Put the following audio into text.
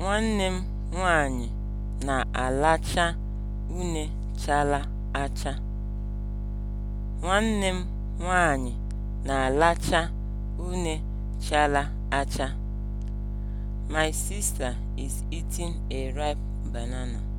Nwanne m nwanyị na alacha une chara acha. acha. My sister is eating a ripe banana.